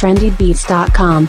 trendybeats.com.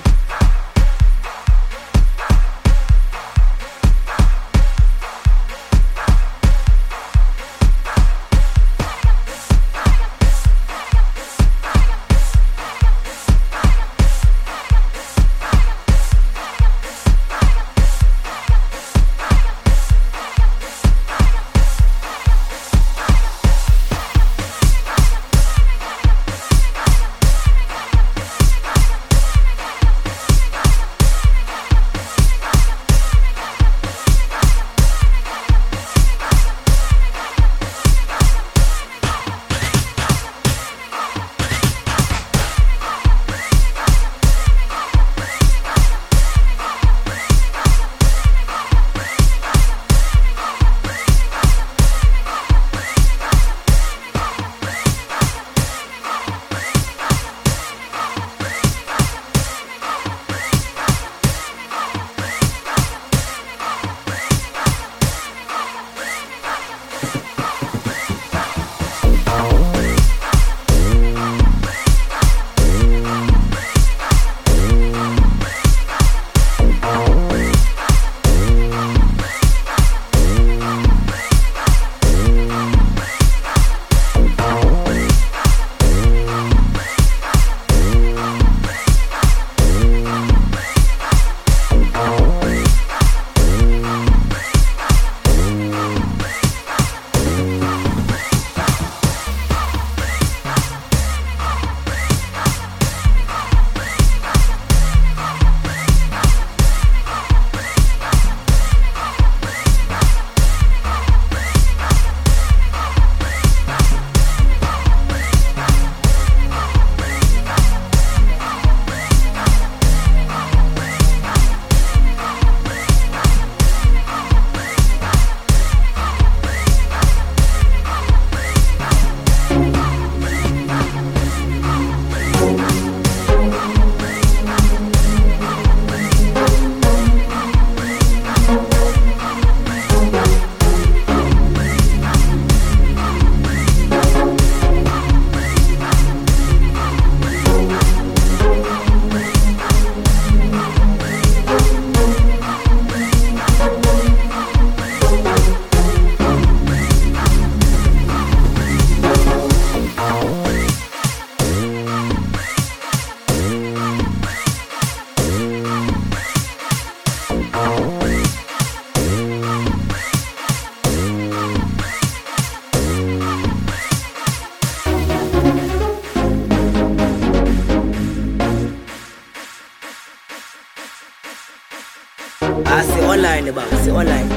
Ah, online ba, online.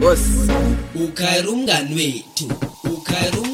Boss, ukhayira umngani wethu, ukhayira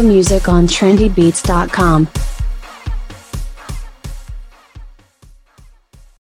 more music on trendybeats.com.